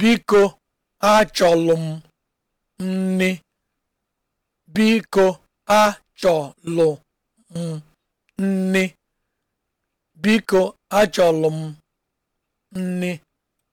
Biko achọlụ m nri. Biko achọlụ m nri. Biko achọlụ m nri.